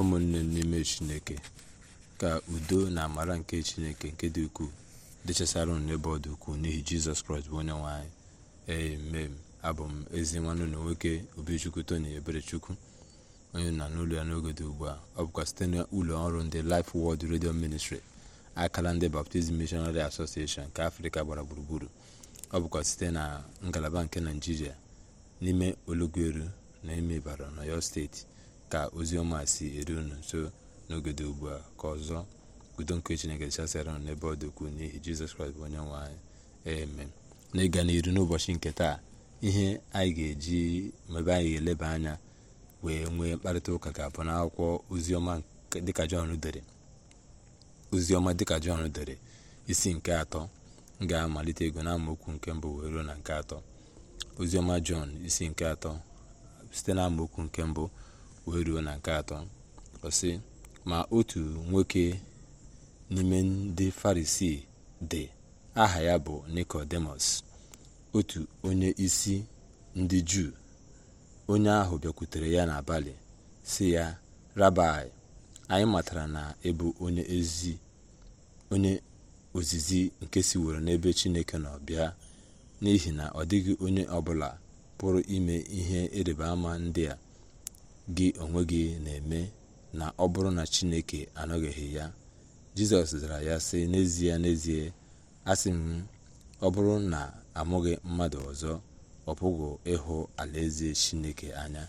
ụmụnne n'ime chineke ka udo na amara nke chineke nke dị ukwuu dịchasara ụnụ n'ebe ọ dị ukwuu n'ihi jizọs kraịst bụ onye nwe anyị emem abụ m ezi nwanne na nwoke obichukwu tony eberechukwu onye na n'ụlọ ya n'oge dị ugbu a ọ bụkwa site na ụlọ ọrụ ndị Life Word Radio Ministry akala ndị baptizim Missionary Association nke afrịka gbara gburugburu ọ bụkwa site na ngalaba nke naijiria n'ime olugweru na ime ibara na yo steeti ka ọma si eru unu nso n'ogodo ugbu a ka ọzọ udo nke chineke chasịara unu n'ebe ọ dị ukwuu n'ihi jizọs kraịst bụ onye nwe anyị amen na ịga n'iru n'ụbọchị nke taa ihe anyị ga-eji mebe anyị ga-eleba anya wee nwee mkparịta ụka ga-abụ na akwụkwọ dịka jọn dere oziọma dịka jọn dere isi nke atọ ga-amalite ego na amaokwu nke mbụ wee ruo na nke atọ oziọma jọn isi nke atọ site na amaokwu nke mbụ wee ruo na nke atọ ọsị ma otu nwoke n'ime ndị farisii dị aha ya bụ nikodemus otu onye isi ndị juu onye ahụ bịakwutere ya n'abalị si ya rabai anyị matara na ịbụ onye onye ozizi nke siworo n'ebe chineke nọ bịa n'ihi na ọ dịghị onye ọbụla pụrụ ime ihe ịrịba ama ndị a gị onwe gị na-eme na ọ bụrụ na Chineke anọghịghị ya Jizọs zara ya sị n'ezie n'ezie asị m ọ bụrụ na amụghị mmadụ ọzọ ọ pụghị ịhụ alaeze Chineke anya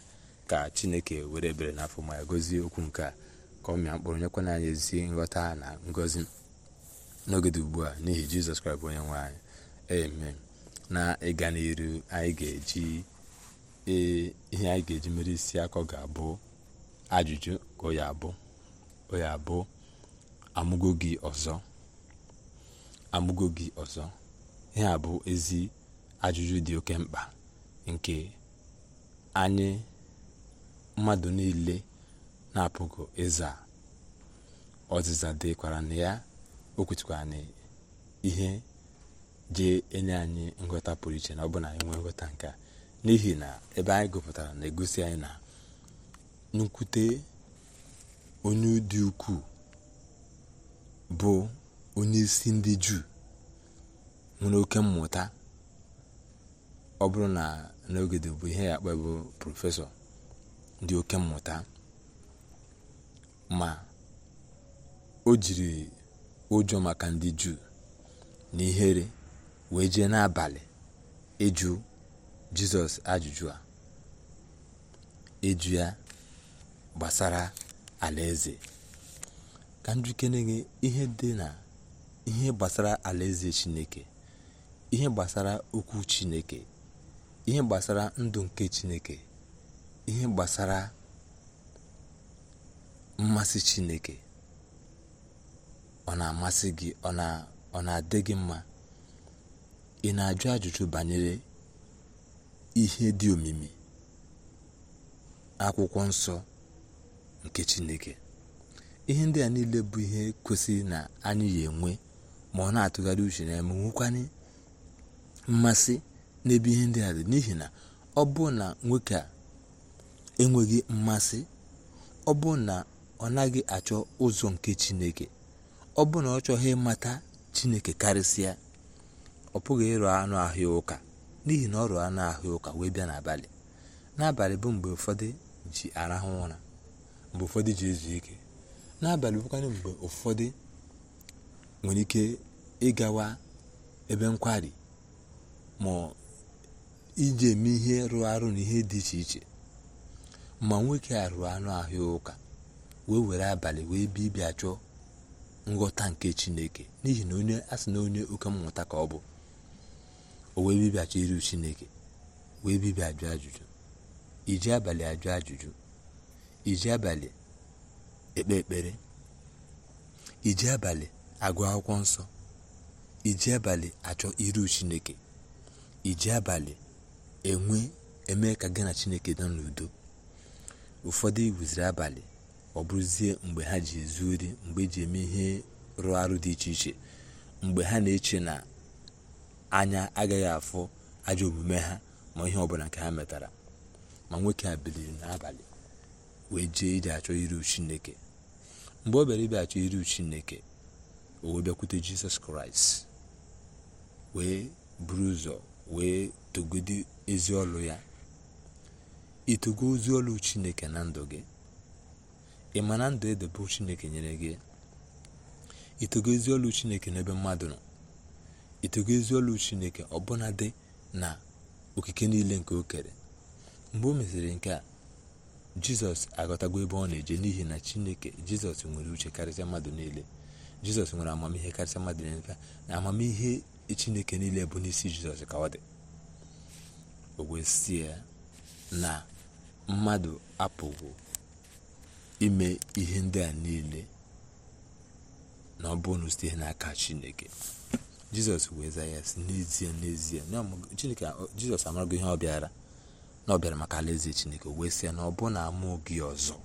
ka Chineke were ebere n'afọ ma ya gozie okwu nke a ka ọ mịa mkpụrụ nyekwana anyị ezi nghọta na ngọzi n'oge dị ugbu a n'ihi Jizọs Kraịst bụ onye nwe anyị eme na ịga n'iru anyị ga-eji ee ihe anyị ga-eji mere isi akọ ga-abụ ajụjụ ka oya abụ oya amụgo gị ọzọ amụgo gị ọzọ ihe a bụ ezi ajụjụ dị oke mkpa nke anyị mmadụ niile na-apụghị ịza ọzịza dịkwara na ya o kwutukwara na ihe jee enye anyị nghọta pụrụ iche na ọ bụ na anyị nwee nghọta nke a n'ihi na ebe anyị gụpụtara na-egosi anyị na nnukwute onye dị ukwuu bụ onye isi ndị juu nwere oke mmụta ọ bụrụ na n'ogede bụ ihe ya akpa bụ prọfesọ dị oke mmụta ma o jiri ụjọ maka ndị juu na ihere wee jee n'abalị ịjụ jizọs ajụjụ a eju ya gbasara alaeze ka njikere gị ihe dị na ihe gbasara alaeze chineke ihe gbasara okwu chineke ihe gbasara ndụ nke chineke ihe gbasara mmasị chineke ọ na-amasị gị ọ na-adị gị mma ị na-ajụ ajụjụ banyere ihe dị omimi akwụkwọ nsọ nke chineke ihe ndị a niile bụ ihe kwesịrị na anyị ya enwe ma ọ na-atụgharị uche na eme mmasị n'ebe ihe ndị a dị n'ihi na ọ bụ na nwoke a enweghị mmasị ọ bụ na ọ naghị achọ ụzọ nke chineke ọ bụ na ọ chọghị ịmata chineke karịsịa ọ pụghị ịrụ anụ ahịa ụka n'ihi na ọrụ a na-ahụ ụka wee bịa n'abalị n'abalị bụ mgbe ụfọdụ ji arahụ ụra mgbe ụfọdụ ji ezu ike n'abalị bụkwanị mgbe ụfọdụ nwere ike ịgawa ebe nkwari ma iji eme ihe rụọ arụ na ihe dị iche iche ma nwoke arụ anụ ahụ ụka wee were abalị wee bịa ịbịa chọọ nghọta nke chineke n'ihi na onye asị na onye oke mmụta ka ọ bụ o wee bibịacha iru chineke wee bibia ajụ ajụjụ iji abalị ajụ ajụjụ iji abalị ekpe ekpere iji abalị agụ akwụkwọ nsọ iji abalị achọ iru chineke iji abalị enwe eme ka gị na chineke nọ n'udo ụfọdụ iwuziri abalị ọ bụrụzie mgbe ha ji ezu mgbe eji eme ihe rụọ arụ dị iche iche mgbe ha na-eche na anya agaghị afụ ajọ omume ha ma ihe ọbụla nke ha metara ma nwoke a biliri n'abalị wee jee ije achọ iru chineke mgbe ọ bịara ibe achọ iru chineke o wee bịakwute jisọs kraịst wee buru ụzọ wee togodi ezi ọlụ ya itogo ozi ọlụ chineke na ndụ gị ị ma na ndụ edebe chineke nyere gị itogo ezi ọlụ chineke n'ebe mmadụ nọ itego ezi olu chineke dị na okike niile nke o kere mgbe o mesịrị nke a jizọs aghọtago ebe ọ na-eje n'ihi na chineke jizọs nwere uche karịsịa mmadụ niile jizọs nwere amamihe karịsịa mmadụ niile na amamihe chineke niile bụ n'isi jizọs ka ọ dị o na mmadụ apụghị ime ihe ndị a niile na ọ bụrụ na n'aka chineke jizọs wee zaa ya si n'ezie n'ezie chineke jizọs amarago ihe ọ bịara na ọ bịara maka alaeze chineke wee sị ya na ọ bụ na amụghị ọzọ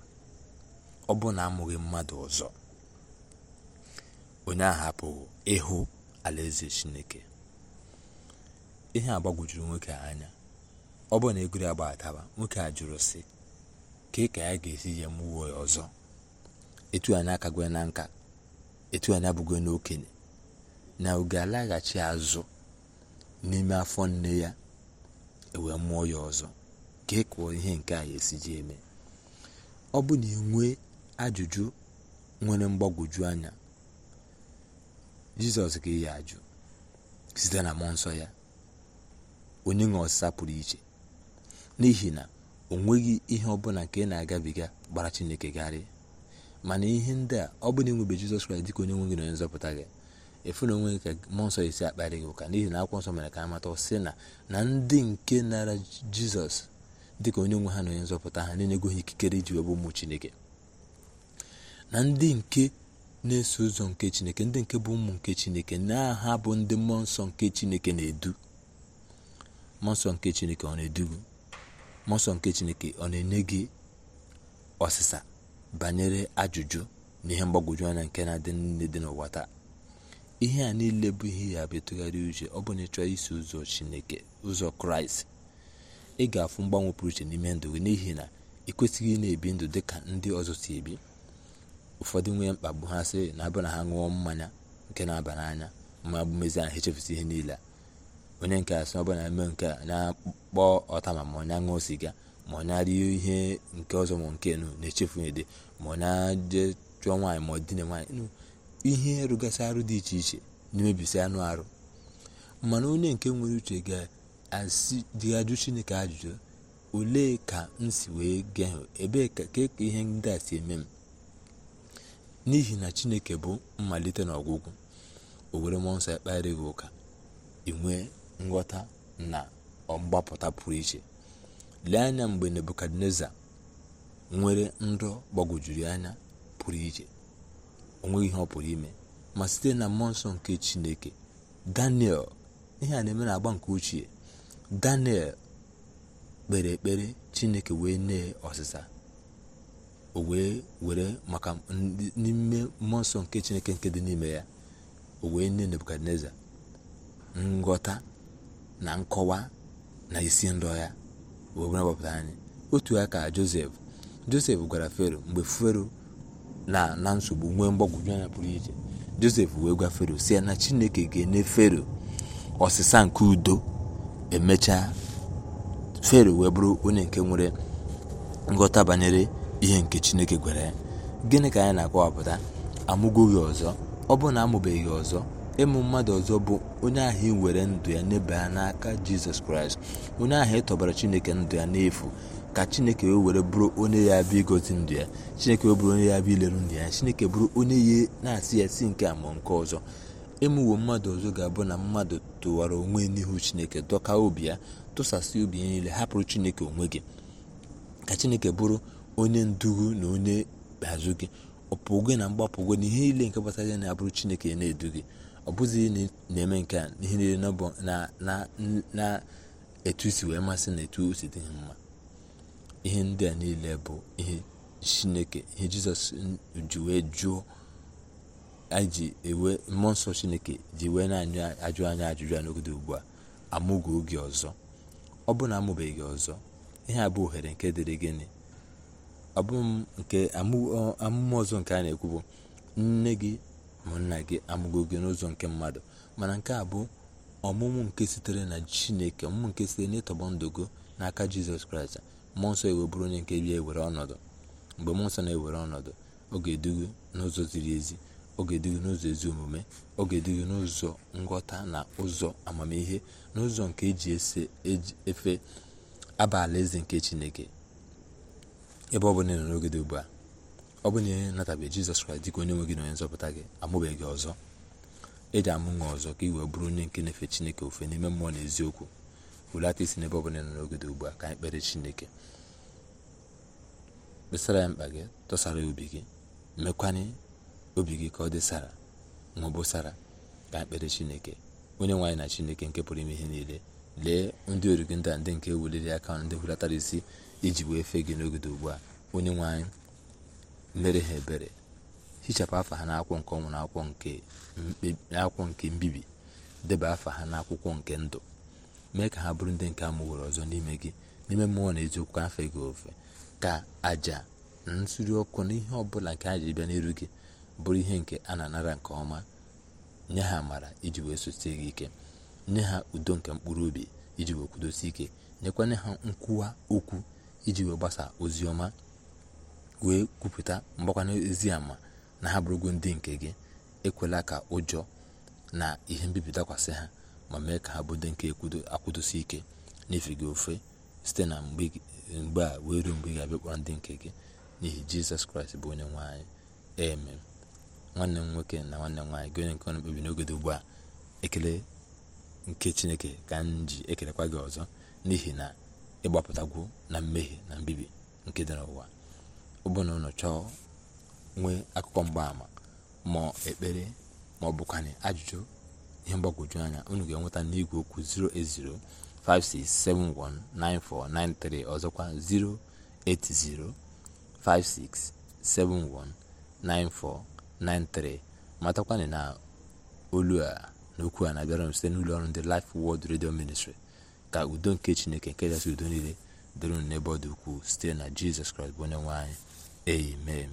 ọ na amụghị mmadụ ọzọ onye ahụ apụghị ịhụ alaeze chineke ihe a gbagwojuru nwoke anya ọ bụ na egori agba ataba nwoke a jụrụ sị ka ka ya ga-esi ya mụwa ọzọ etu anyị na nka etu abụghị n'okenye na ọ alaghachi azụ n'ime afọ nne ya ewee mụọ ya ọzọ ka ị e ihe nke a esi ji eme ọ bụ na enwe ajụjụ nwere mgbagwoju anya jizọs ga ya ajụ site na mmụọ nsọ ya onye nwe ọsịsa pụrụ iche n'ihi na o nweghị ihe ọbụla nke na-agabiga gbara chineke garị mana ihe ndị a ọ bụ na enwebe jizọs kraịst dịka onye na onye nzọpụta gị efu na onwe nke mmụọ nsọ esi akparị gị ụka n'ihi na akwụkwọ nsọ mere ka amata sị na na ndị nke nara jizọs dị ka onye nwe ha na onye nzọpụta ha na-enyegoghị ikikere iji wee bụ ụmụ chineke na ndị nke na-eso ụzọ nke chineke ndị nke bụ ụmụ nke chineke na-aha bụ ndị mmụọ nsọ nke chineke na-edu mmụọ nsọ nke chineke ọ na-edu gị mmụọ nsọ nke chineke ọ na-enye gị ọsịsa banyere ajụjụ na ihe mgbagwoju anya nke na-adị nne dị n'ụwa taa ihe a niile bụ ihe ya bụ ịtụgharị uche ọ bụ na ịchọ isi ụzọ chineke ụzọ kraịst ị ga-afụ mgbanwe pụrụ iche n'ime ndụ gị n'ihi na ị kwesịghị na-ebi ndụ dị ka ndị ọzọ si ebi ụfọdụ nwee mkpagbu ha sị na abụ na ha ṅụọ mmanya nke na-aba n'anya ma bụ mezi ha echefusi ihe niile onye nke a ọ bụ na-eme nke a na-akpọ ọta ma onye ṅụọ siga ma ọ na ihe nke ọzọ ma nke nụ na-echefu ede ma ọ na chụọ nwaanyị ma ọ dine nwaanyị ihe rụgasị arụ dị iche iche na-emebisi anụ arụ mana onye nke nwere uche ga-ajụ chineke ajụjụ olee ka m si wee gaa ebee ka ihe ndị a si eme m n'ihi na chineke bụ mmalite na ọgwụgwụ owere mmụọ nsọ ya gị ụka inwe nghọta na mgbapụta pụrụ iche lee anya mgbe nebukadneza nwere ndụ gbagwojuru anya pụrụ iche onweghi ihe ọ pụrụ ime ma site na mmụọ nsọ nke chineke daniel ihe a na-eme na-agba nke ochie daniel kpere ekpere chineke wee nee ọsịsa o wee were maka n'ime mmụọ nsọ nke chineke nke dị n'ime ya o wee nye nebukadneza nghọta na nkọwa na isi ndọ ya wee gbapụta anyị otu aka josef josef gwara fero mgbe fero na na nsogbu nwee mgbagwoju anya pụrụ iche josef wee gwa fero si ya na chineke ga-enye fero ọsịsa nke udo emechaa fero wee bụrụ onye nke nwere nghọta banyere ihe nke chineke gwara ya gịnị ka anyị na-akọwapụta amụgo gị ọzọ ọ bụrụ na amụbeghị ọzọ ịmụ mmadụ ọzọ bụ onye ahụ ị were ndụ ya nyebe ya n'aka jizọs kraịst onye ahụ ị e tọbara chineke ndụ ya n'efu ka chineke wee were bụrụ onye ya abịa igozi ndụ ya chineke wee bụrụ onye ya bịa ileru ndụ ya chineke bụrụ onye ya na-asị ya si nke a ma nke ọzọ ịmụwo mmadụ ọzọ ga-abụ na mmadụ tụwara onwe n'ihu chineke dọka obi ya tụsasị obi ya niile hapụrụ chineke onwe gị ka chineke bụrụ onye ndugu na onye azụ gị ọpụgo na mgbapụgo na ihe niile nke gbasara ya na-abụrụ chineke na-edu gị ọ bụghị na-eme nke a ihe niile na-etu isi wee masị na etu osi dị mma ihe ndị a niile bụ ihe chineke ihe jizọs ji wee jụọ anyị ji ewe mmụọ nsọ chineke ji wee na-ajụ anya ajụjụ a n'ogodo ugbu a amụgo oge ọzọ ọ bụ na amụbeghị ọzọ ihe a bụ ohere nke dịrị gịnị nke amụma ọzọ nke a na-ekwu bụ nne gị ma nna gị amụgo gị n'ụzọ nke mmadụ mana nke a bụ ọmụmụ nke sitere na chineke ọmụmụ nke sitere n'ịtọgbọ ịtọgbọ ndogo n'aka jizọs kraịst mmụọ nsọ bụrụ onye nke bịa ewere ọnọdụ mgbe mmụọ nsọ na-ewere ọnọdụ ọ ga-edugu n'ụzọ ziri ezi ọ ga-edugu n'ụzọ ezi omume ọ ga-edugu n'ụzọ nghọta na ụzọ amamihe n'ụzọ nke eji e efe abala eze nke chineke ebe ọ bụla ị n'oge dị ugbu a ọ bụla ihe natabeghị jizọs kraịst dịka onye nwe gị na onye nzọpụta gị amụbeghị ọzọ eji amụ nwa ọzọ ka ị wee bụrụ onye nke na-efe chineke ofe n'ime mmụọ na eziokwu hulata isi n'ebe ọbụla nọ n'oge ugbu a ka anyị kpere chineke kpesara ya mkpa gị tụsara obi gị mekwanye obi gị ka ọ dị sara ka anyị kpere chineke onye nwaanyị na chineke nke pụrụ ime ihe niile lee ndị origi ndị a ndị nke ewuliri aka ndị hulatara isi iji wee fee gị n'oge ugbu a onye nwaanyị mere ha ebere hichapụ afa ha n'akwụkwọ nke ọnwụ na akwụkwọ nke mbibi deba afa ha n'akwụkwọ nke ndụ mee ka ha bụrụ ndị nke amụworo ọzọ n'ime gị n'ime mmụọ na eziokwu afọ gị ofe ka aja na nsuri ọkụ na ihe ọbụla nke aja bịa n'iru gị bụrụ ihe nke a na-anara nke ọma nye ha amara iji wee sosie gị ike nye ha udo nke mkpụrụ obi iji wee kwudosi ike nyekwanye ha nkwuwa okwu iji wee gbasaa ozi ọma wee kwupụta mgbakwanye ezi ama na ha bụrụgo ndị nke gị ekwela ka ụjọ na ihe mbibi dakwasị ha ma mee ka ha bụdo nke akwụdosi ike n'ife gị ofe site na mgbe a wee ruo mgbe ị ga ndị nke gị n'ihi jizọs kraịst bụ onye nwaanyị anyị eme nwanne m nwoke na nwanne m nwaanyị gị onye nke ọnụ mkpebi n'oge dị ugbu a ekele nke chineke ka m ji ekelekwa gị ọzọ n'ihi na ịgbapụtagwo na mmehie na mbibi nke dị n'ụwa ụbụ na ụlọ chọọ nwee akụkọ mgbaàmà ma ekpere ma ọ bụkwanị ajụjụ ihe mgbagwoju anya unu ga-enweta n'igwe okwu 08056719493 ọzọkwa 08056719493 matakwana na olu a na okwu a na-abịara m site n'ụlọ ọrụ ndị Life Word Radio Ministry ka udo nke Chineke nke kachasị udo niile dịrị n'ebe ọ dị ukwuu site na Jizọs Kraịst bụ onye nwe anyị amen